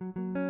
thank you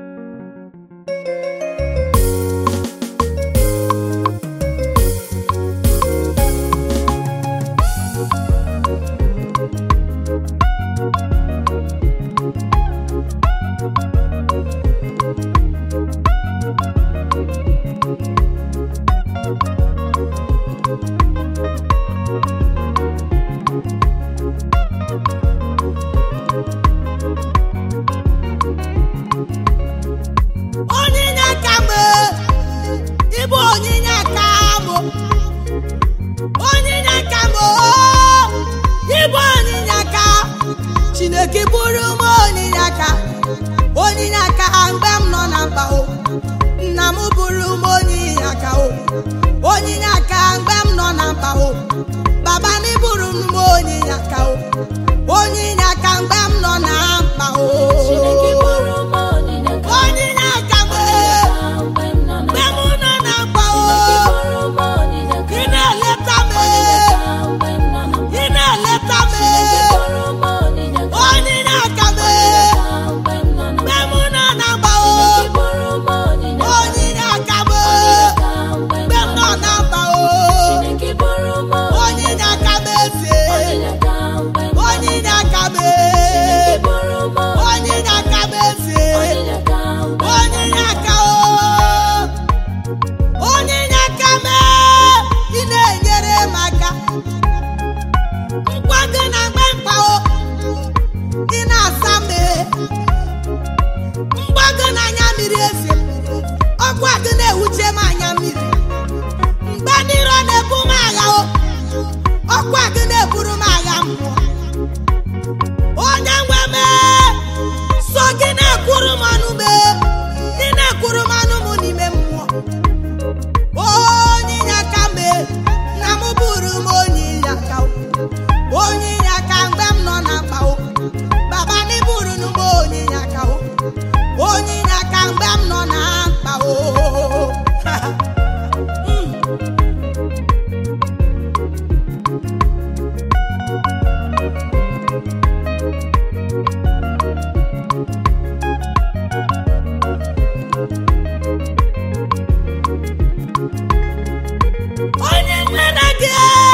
Yeah.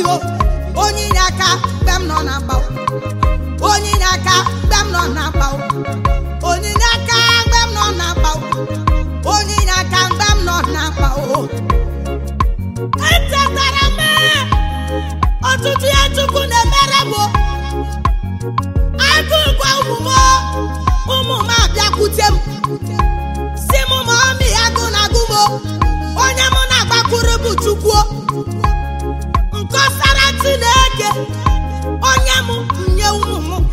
o onye inye aka mgbe m nọ na mgba onye inye aka mgbe m nọ na mgba onye inye aka mgbe m nọ na mgba onye inye aka mgbe m nọ na mgba echetara m ọtụtụ ya chukwu na-emere m agụgwa ụmụ ụmụ m abịakwute m si m ma ọmị agụ na onye mụ na-agbakwuru bụ onye m nye ụmụ m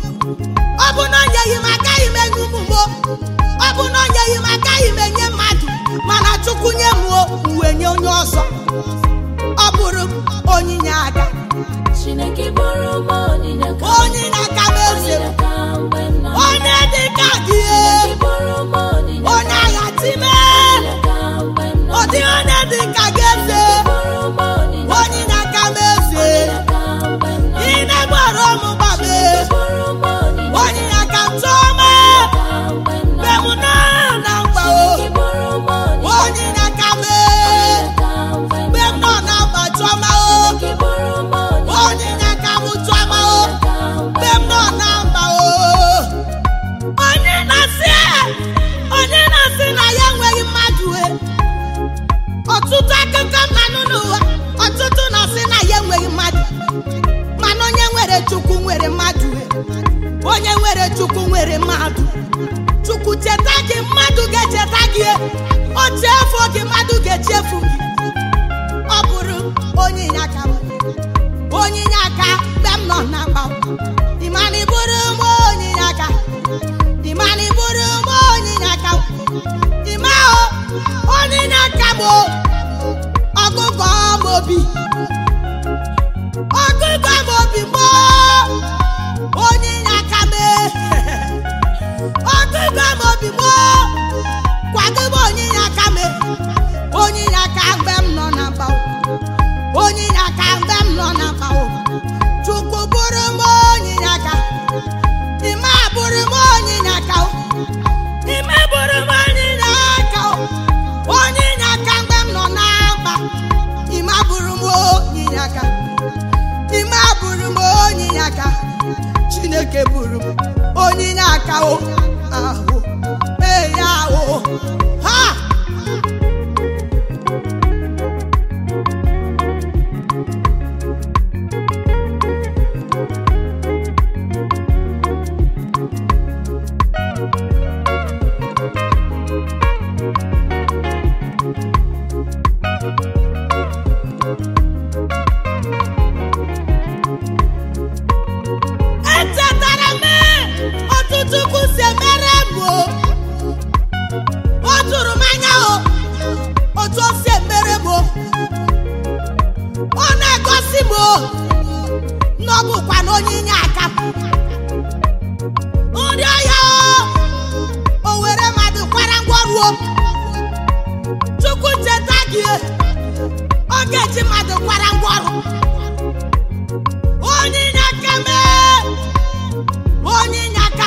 ọ bụ na onyeghị m agaghị m enye ụmụ m ọ bụ na onyeghị m agaghị m enye mmadụ mana chukwu nye m uwe nye onye ọzọ onye na-asị na ya enweghị mmadụ e, ọtụtụ akụkọ mmanụ n'ụwa ọtụtụ na-asị na ya enweghị mmadụ mana onye nwere chukwu nwere mmadụ e, onye nwere chukwu nwere mmadụ chukwu cheta gị mmadụ ga-echeta gị e, oche afọ gị mmadụ ọ bụ baa mọbi. chineke bụrụ m onye na-akawo ahụ mee ya ahụ ndị ahịa owere were mmadụ kwara ngwọruo chukwu cheta gị oge ji mmadụ kwara ngwọrụ onye inye aka mee onye inye aka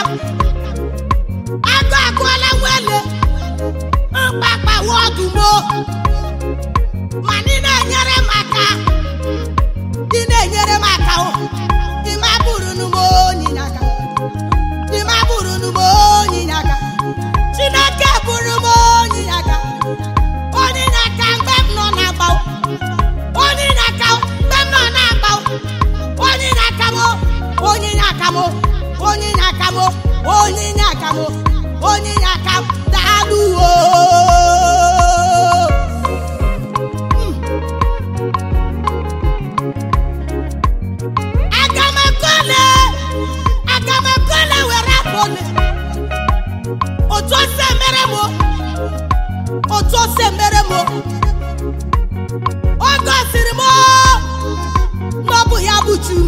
agụ agụọla nwele mkpakpawa ọdụmo Ma ị na-enyere m aka ị na-enyere maka otu o si emere m o gosiri m na ọ bụ ya bụ Chum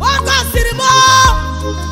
oge gosiri m